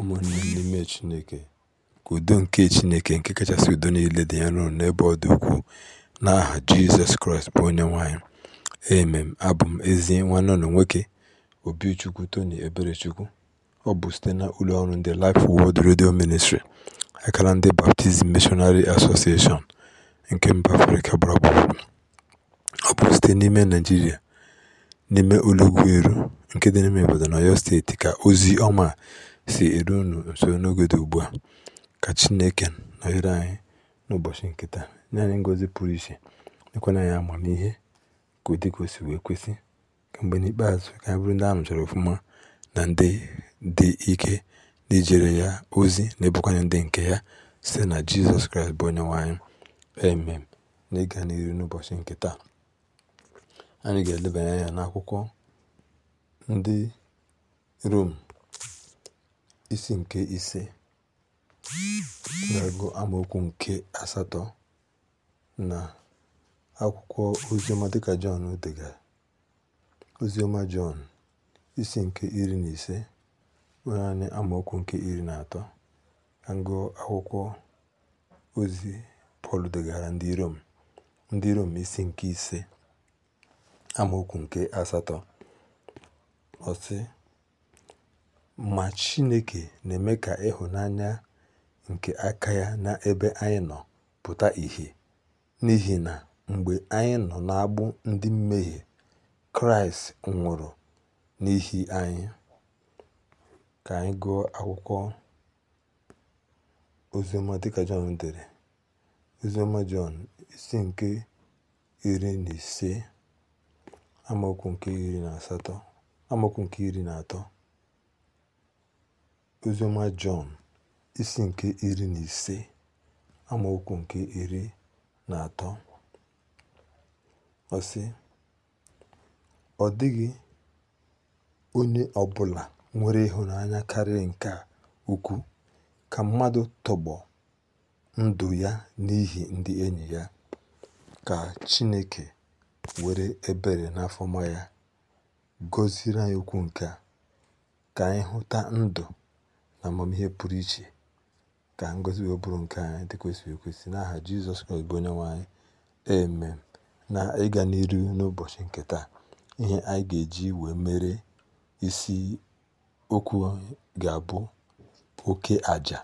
ụmụnne n'ime Chineke, ka udo nke Chineke nke kachasị udo niile dị nro n'ebe ọ dị ukwuu, n'aha Jizọs Kraịst bụ onye nwanyị emem Abụ m ezi nwanne ụlọ nwoke Obichukwu Tony Eberechukwu. Ọ bụ site na ụlọ ọrụ ndị Life Word redio ministri akara ndị baptizim Missionary Association nke mba Afrịka gburugburu. Ọ bụ site n'ime naijiria n'ime ụlọ nke dị n'ime na Oyo Steeti, ka ozi ọma si eru unu nso n'oge dị ugbu a. Ka Chineke nọnyere anyị n'ụbọchị nke taa, nye anyị ngọzi pụrụ iche, nyekwana anyị amamihe ka dị ka o si wee kwesị, ka mgbe n'ikpeazụ ka anyị bụrụ ndị a nụchara ọfụma na ndị dị ike ndị jere ya ozi na ebụkwanye ndị nke ya site na Jizọs Kraịst bụ onye Onyenwe anyị. na N'ịga n'ihu n'ụbọchị nke taa, anyị ga-elebanye anya n'akwụkwọ ndị Rom isi nke ise na-agụ amaokwu nke asatọ na akwụkwọ ozioma dịka Jọn degara ozioma Jọn isi nke iri na ise nwere anyị amaokwu nke iri na atọ na akwụkwọ ozi Pọl degara ndị Rom ndị Rom isi nke ise amaokwu nke asatọ ọsị ma Chineke na-eme ka ịhụnanya nke aka ya n'ebe anyị nọ pụta ìhè n'ihi na mgbe anyị nọ n'agbụ ndị mmehie, Kraịst nwụrụ n'ihi anyị. Ka anyị gụọ akwụkwọ oziọma dịka Jọn dere. ozioma Jọn isi nke iri na ise amaokwu nke iri na asatọ amaokwu nke iri na atọ Oziọma Jọn isi nke iri na ise amaokwu nke iri na atọ ọ sị ọ dịghị onye ọbụla nwere ịhụnanya karịa nke ukwu ka mmadụ tọgbọ ndụ ya n'ihi ndị enyi ya ka Chineke were ebere n'afọma ya gọziri anyị okwu nke a ka anyị hụta ndụ na amamihe pụrụ iche ka ngọzi wee bụrụ nke anyị dị kwesịrị ekwesị n'aha Jizọs Kraịst bụ onye nwanyị anyị na ịga n'iru n'ụbọchị nke taa ihe anyị ga-eji wee mere isi okwu ga-abụ oke aja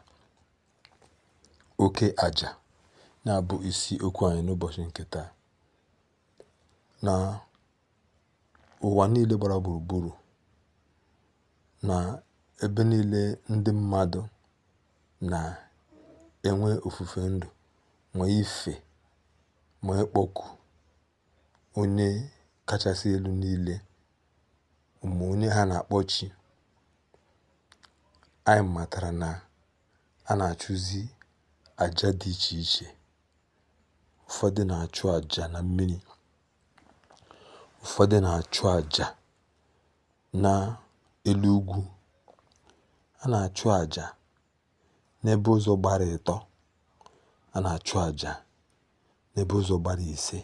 oke aja na-abụ isi okwu anyị n'ụbọchị nke taa na ụwa niile gbara gburugburu na ebe niile ndị mmadụ na-enwe ofufe ndụ nwee ife ma ịkpọku onye kachasị elu niile ụmụ onye ha na-akpọ chi anyị matara na a na-achụzi aja dị iche iche ụfọdụ na-achụ aja na mmiri ụfọdụ na-achụ aja na elu ugwu a na-achụ àjà n'ebe ụzọ gbara ịtọ a na-achụ àjà n'ebe ụzọ gbara ise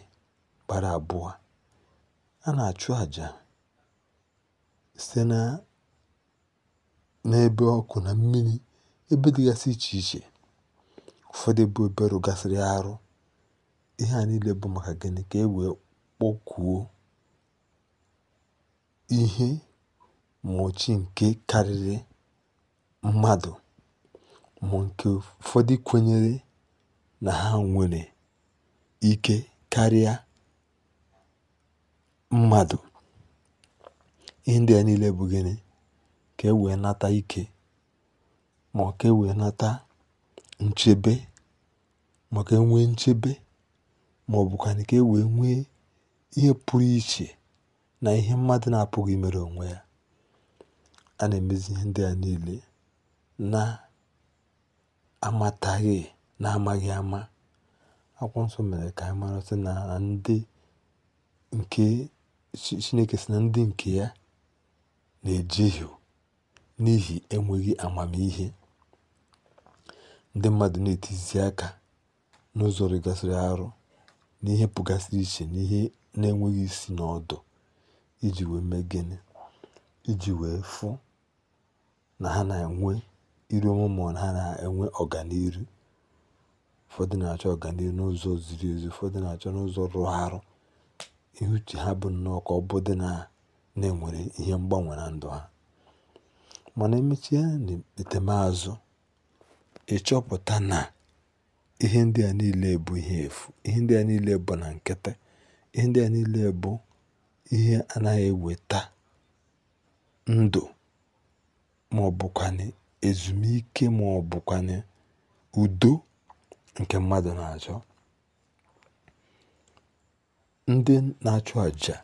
gbara abụọ a na-achụ àjà site na n'ebe ọkụ na mmiri ebe dịgasị iche iche ụfọdụ bụ obere gasịrị arụ ihe a niile bụ maka gịnị ka e wee kpọkùo ihe mgbòchi nke karịrị mmadụ ma nke ụfọdụ kwenyere na ha nwere ike karịa mmadụ ihe ndị bụ niile bụ gịnị ka e wee nata ike ma ka e wee nata nchebe ma ọ ka enwee nchebe ma màọ̀bụ̀kwànụ̀ kà e wee nwee ihe pụrụ iche na ihe mmadụ na apụghị mere onwe ya a na-emezi ihe ndị a niile. na-amataghị amaghị ama. Akwụkwọ Nsọ mere ka anyị mara sị na ndị nke Chineke sị na ndị nke ya na-ejehie n'ihi enweghị amamihe. Ndị mmadụ na-etizi aka n'ụzọ rịgasịrị arụ n'ihe pụgasịrị iche n'ihe na-enweghị isi n'ọdụ iji wee mee Iji wee fụ na ha na-enwe iru ọma ha na-enwe ọganiru ụfọdụ na-achọ ọganiru n'ụzọ ziri ezi ụfọdụ na-achọ n'ụzọ rụrụ arụ ihe uche ha bụ nnọọ ka ọ bụdị na na-enwere ihe mgbanwe na ndụ ha mana emechie n'etemeazụ ịchọpụta na ihe ndị a niile bụ ihe efu ihe ndị a niile bụ na nkịtị ihe ndị a niile bụ ihe anaghị eweta ndụ ma ọ ezumike ma ọ udo nke mmadụ na-achọ ndị na-achụ àjà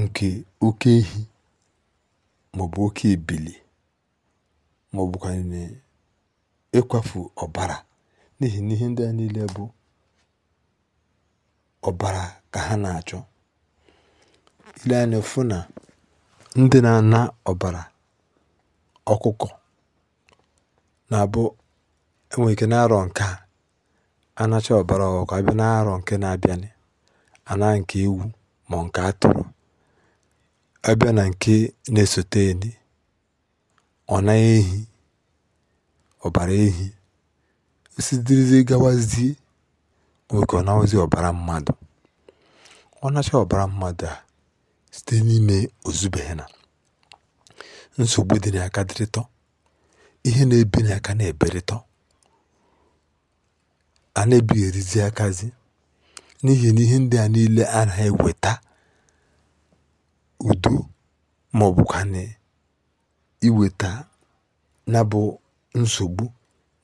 nke oke ehi maọbụ oke ebili maọbụkwanụ ịkwafu ọbara n'ihi na ihe ndị a niile bụ ọbara ka ha na-achọ ile anya na ndị na-ana ọbara Ọkụkọ na-abụ e nwere ike n'arọ̀ ǹke a anacha ọ̀bara abịa n'arọ̀ nke na-abịanị ana nke ewu ma nke atụrụ abịa na nke na-esote eni ọ ehi ọbara ehi osidirizie gawazie nwere ike ọ nawazie ọbara mmadụ ọ nacha mmadụ a site n'ime ozubena nsogbu dị n'aka dịrịtọ ihe na-ebi n'aka na-eberịtọ a na-ebighị erizi akazi n'ihi na ihe ndị a niile a na eweta udo ma ọ bụkwanị iweta na bụ nsogbu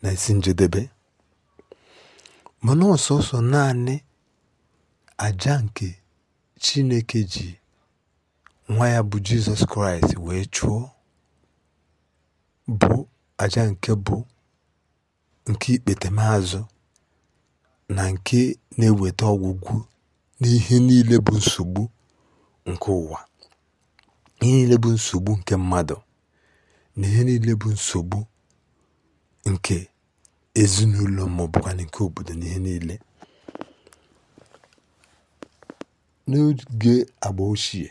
na isi njedebe mana ọsọsọ naanị aja nke chineke ji nwa ya bụ jizọs kraịst wee chụọ bụ aja nke bụ nke ikpètèmazụ na nke na eweta ọgwụgwụ n'ihe niile bụ nsogbu nke ụwa ihe niile bụ nsogbu nke mmadụ na ihe niile bụ nsogbu nke ezinụlọ maọbụkwanụ nke obodo na ihe niile n'oge agba ochie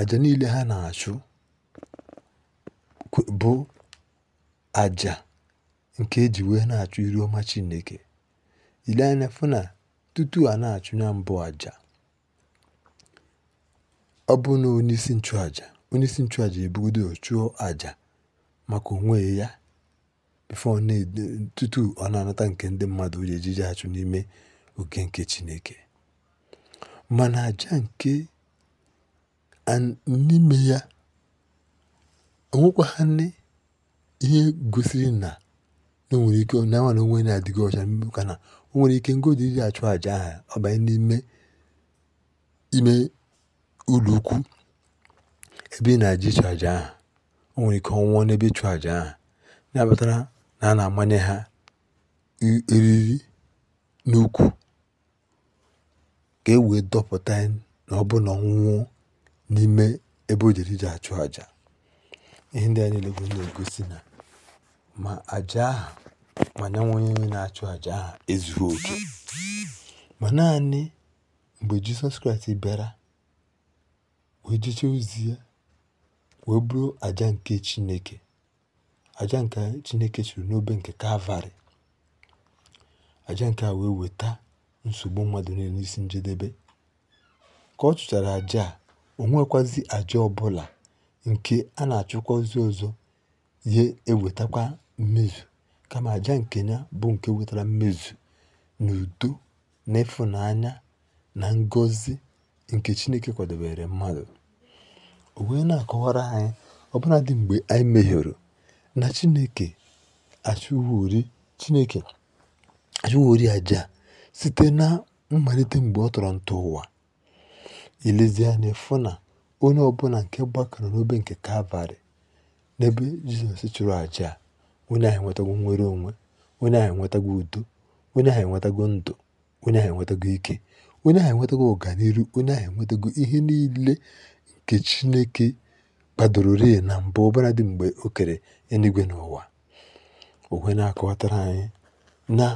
àjà niile ha na-achụ bụ àjà nke eji wee na-achụ iru ọma Chineke. Ile anya fụ na tutu a na-achụ ya mbụ àjà ọ bụ na onyeisi nchụàjà onyeisi nchụàjà ebugodo chụọ àjà maka onwe ya bifo tutu ọ na-anata nke ndị mmadụ ji ejije achụ n'ime oge nke Chineke mana àjà nke n'ime ya onwekwanị ihe gosiri na o nwere ike na nwana onwe na-adịghị ọcha ka na o nwere ike ngọzi iri achụ àjà aha ọ n'ime ime ụlọ ebe ị na-aja ịchụ àja aha o nwere ike ọnwụọ n'ebe ịchụ àja aha na-abatara na a na-amanye ha eriri n'ukwu ka e wee dọpụta ya na ọ bụ na ọ n'ime ebe o jere ije achụ àjà. ihe ndị a niile bụ na-egosi na ma àjà ahụ ma nyanwa onye na-achụ àjà ahụ ezughị oke ma naanị mgbe Jizọs Kraịst bịara wee jechee ozi ya wee bụrụ àjà nke Chineke àjà nke Chineke chụrụ n'obe nke Kalvarị àjà nke a wee weta nsogbu mmadụ niile n'isi njedebe ka ọ chụchara àjà a o nwekwazi àjà ọbụla nke a na-achụkwa ozi ọ̀zọ ihe mmezu kama kama nke nke ya bụ nke wetara mmezu na udo na ịfụnanya na ngọzi nke Chineke kwadobere mmadụ o wee na-akọwara anyị ọbụla dị mgbe anyị mehiere na Chineke achụwori Chineke achụwori aja site na mmalite mgbe ọ tọrọ ntọ ụwa elezie onye ọbụla nke gbakọrọ n'obe nke kalvarị n'ebe jizọs chụrụ àjà a onye ahụ enwetago nwere onwe onye ahụ enwetago udo onye ahụ enwetago ndụ onye ahụ enwetago ike onye ahụ enwetago ọganiru onye ahụ enwetago ihe niile nke chineke kpadorori na mbụ ọbara dị mgbe o kere eluigwe na ụwa onwe na-akọwatara anyị na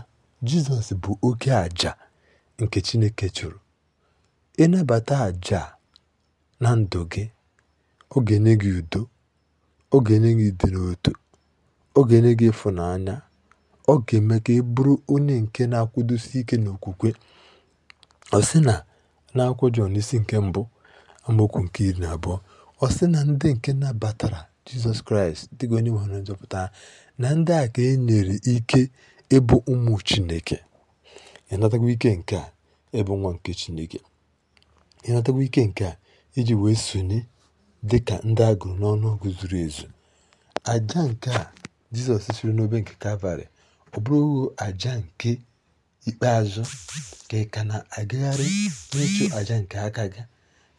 jizọs bụ oke àjà nke chineke chụrụ ịnabata àjà na ndụ gị, ọ ga-enye gị udo, ọ ga-enye gị ịdị n'otu, ọ ga-enye gị ịfụnanya, ọ ga-eme ka ị bụrụ onye nke na-akwụdosi ike n'okwukwe. Ọ sị na na-akwụ Jọn isi nke mbụ amaokwu nke iri na abụọ ọ sị na ndị nke nabatara Jizọs Kraịst dịka onye nwe na nzọpụta ha na ndị a ka e nyere ike ịbụ ụmụ Chineke. Ịnatagwa ike nke a ịbụ nwa nke Chineke. Ịnatagwa ike nke a iji wee sonye dịka ndị a gụrụ n'ọnụọgụ zuru ezu aja nke a jizọs siri n'obe nke kalvarị ọ bụrụghị aja nke ikpeazụ ka ị ka na-agagharị n'ịchụ aja nke aka gị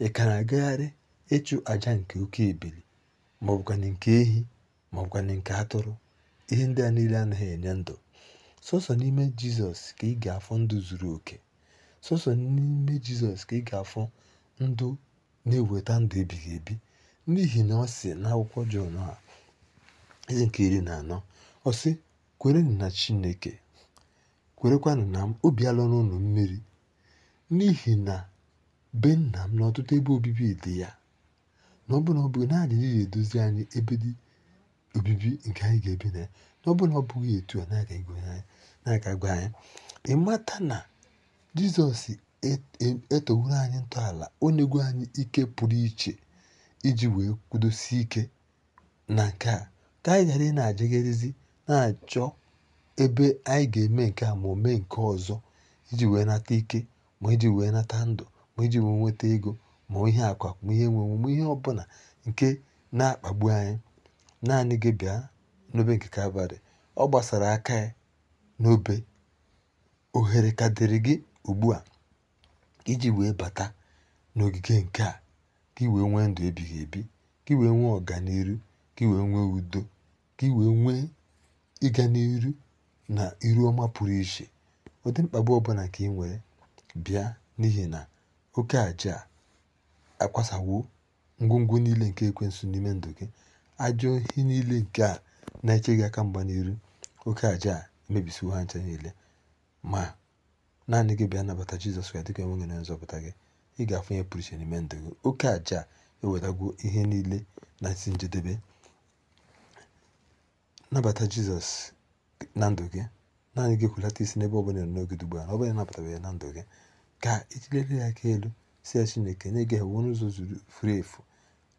ị ka na-agagharị ịchụ aja nke oke ebili maọbụkwanị nke ehi maọbụkwanị nke atụrụ ihe ndị a niile anaghị enye ndụ sọsọ n'ime jizọs ka ị ga-afọ ndụ zuru oke sọsọ n'ime jizọs ka ị ga-afọ ndụ na-eweta ndụ ebighị ebi n'ihi na ọ si n'akwụkwọ Jọn a eze nke iri na anọ ọ sị kwerenụ na Chineke kwerekwanụ na m obi alụrụ mmiri n'ihi na be nna m na ọtụtụ ebe obibi dị ya na ọbụna ọ bụghị na adịghị edozi anyị ebe dị obibi nke anyị ga-ebi na ya na ọbụna ọ bụghị etu a na-aga gwa anyị ịmata na jizọs E-, e-, eteworo anyị ntọala o nyego anyị ike pụrụ iche iji wee kwudosie ike na nke a ka anyị ghara ị na-ajegharịzi na-achọ ebe anyị ga-eme nke a ma o mee nke ọzọ iji wee nata ike ma iji wee nata ndụ ma iji wee nweta ego ma ihe akụ akụ ma ihe enwenwe ma ihe ọbụla nke na-akpagbu anyị naanị gị bịa n'obe nke kalvarị ọ gbasara aka ya n'obe ohere ka dịrị gị ugbu a iji wee bata n'ogige nke a gị wee nwee ndụ ebighị ebi gị wee nwee ọganiru gị wee nwee udo gị wee nwee ịga n'iru na iru ọma pụrụ iche ụdị mkpagbu ọbụla ka ị nwere bịa n'ihi na oke aja a akwasawo ngwongwo niile nke ekwensu n'ime ndụ gị ajọ ihe niile nke a na-eche gị aka mgba n'iru oke aja a emebisiwo ha ncha niile ma naanị gị bịa nabata jizọs ka dịka enwe gị na nzọpụta gị ị ga-afụ ihe pụrụ iche n'ime ndụ gị oke aja ewetagwo ihe niile na isi njedebe nabata jizọs na ndụ gị naanị gị kwulata isi n'ebe ọ bụla n'oge ugbu a ọ bụla nabatara ya na ndụ gị ka ijilere ya aka elu si ya chineke na gị ewu n'ụzọ zuru furu efu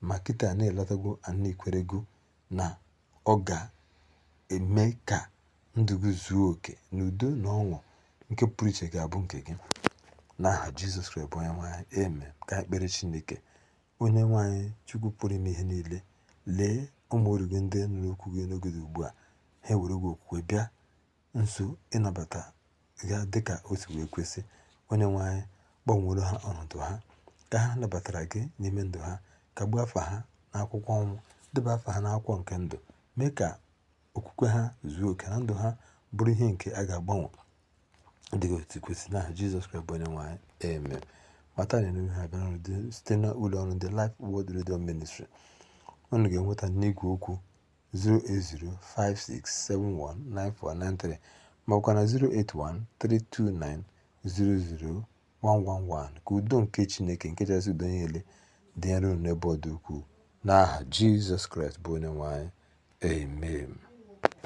ma kịta na-elọtago anaikwere na ọ ga-eme ka ndụ gị zuo oke n'udo na ọṅụ nke pụrụ iche ga-abụ nke gị. N'aha Jizọs Kraịst bụ onye nwaanyị eme Ka ekpere Chineke onye nwaanyị Chukwu pụrụ ime ihe niile lee ụmụ oru gị ndị nụrụ okwu gị n'oge dị ugbu a ha ewere gị okwukwe bịa nso ịnabata ya dịka o si wee kwesị onye nwaanyị gbanwere ha ọnọdụ ha ka ha nabatara gị n'ime ndụ ha ka gbuo afa ha n'akwụkwọ ọnwụ deba afọ ha n'akwụkwọ nke ndụ mee ka okwukwe ha zuo oke na ndụ ha bụrụ ihe nke a ga-agbanwe ndị otu kwesịrị n'aha Jizọs Kraịst bụ onye nwe eme mata na enughi ha bịara ọrụ site na ụlọ ndị Life Word redio Ministry unu ga-enweta n'igwe okwu 08056719493 maọbụkwa na 08132900111 ka udo nke Chineke nke chasị udo niile dị nro n'ebe ọ dị ukwuu n'aha Jizọs Kraịst bụ onye nwe